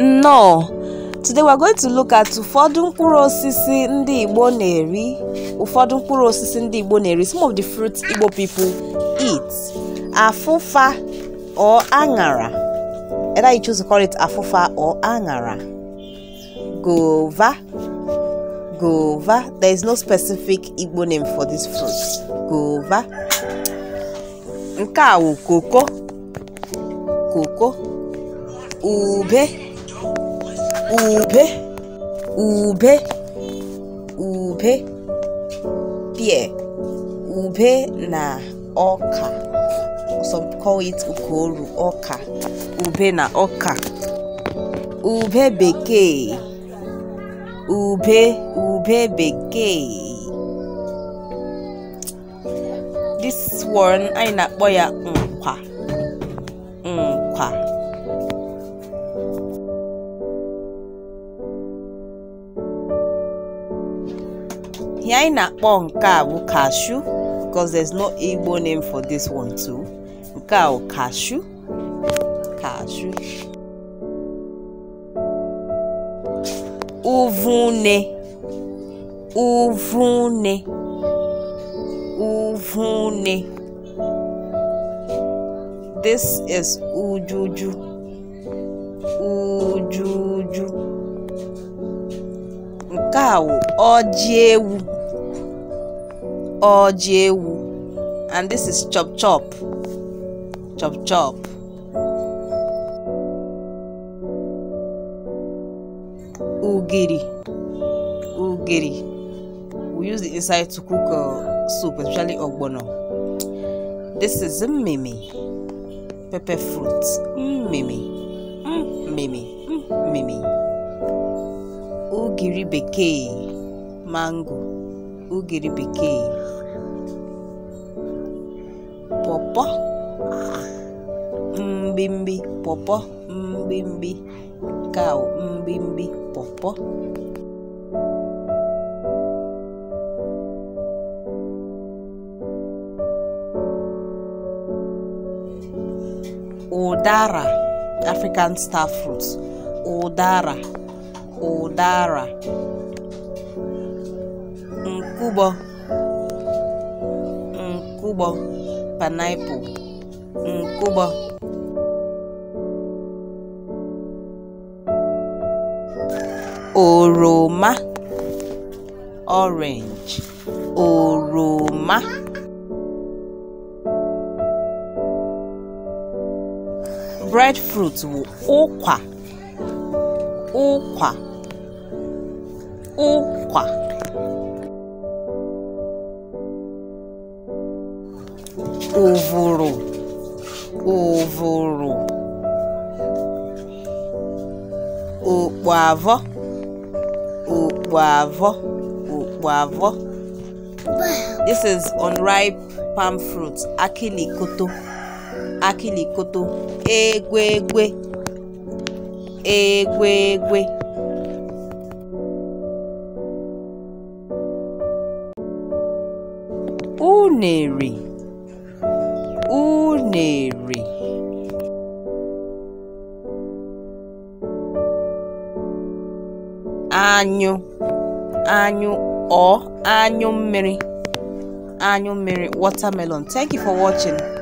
nnọọ today we are going to look at ụfọdụ mkpụrụ osisi ndị igbo na-eri ụfọdụ mkpụrụ osisi ndị igbo na-eri some of the fruits igbo people eat afụfa or aṅara either you choose to call it afụfa or aṅara gova gova there is no specific igbo name for this fruit gova nke a wụ koko koko ube ube ube ube pear ube na ọka some call it ukoru ọka ube na ọka ube bekee ube ube bekee this one anyị na-akpọ ya nkwa mm. ihe anyị na-akpọ nke a cashew because there's no Igbo name for this one too nke a bụ cashew cashew uvune uvune uvune this is ujuju ujuju nke a bụ ọjị ewu ọjị ewu and this is chop chop chop chop ugiri ugiri we use the inside to cook uh, soup especially ogbono this is mimi pepper fruit mimi mimi mimi ugiri bekee mango ugiri bekee pọpọ mbimbi pọpọ mbimbi kaụ mbimbi pọpọ ụdara African star fruit ụdara ụdara nkụgbọ nkụgbọ mm, painiapụl nkụgbọ mm, oroma orange oroma breadfruit wụ ụkwa ụkwa ụkwa ụ̀vụ̀rụ̀ ụ̀vụ̀rụ̀ ụ̀kpụ̀avọ̀ ụ̀kpụ̀avọ̀ ụ̀kpụ̀avọ̀ this is unripe palm fruit akịlịkoto akịlịkoto egwe egwe. unere unere anyụ anyụ ọ anyụ mmiri anyụ mmiri watermelon thank you for watching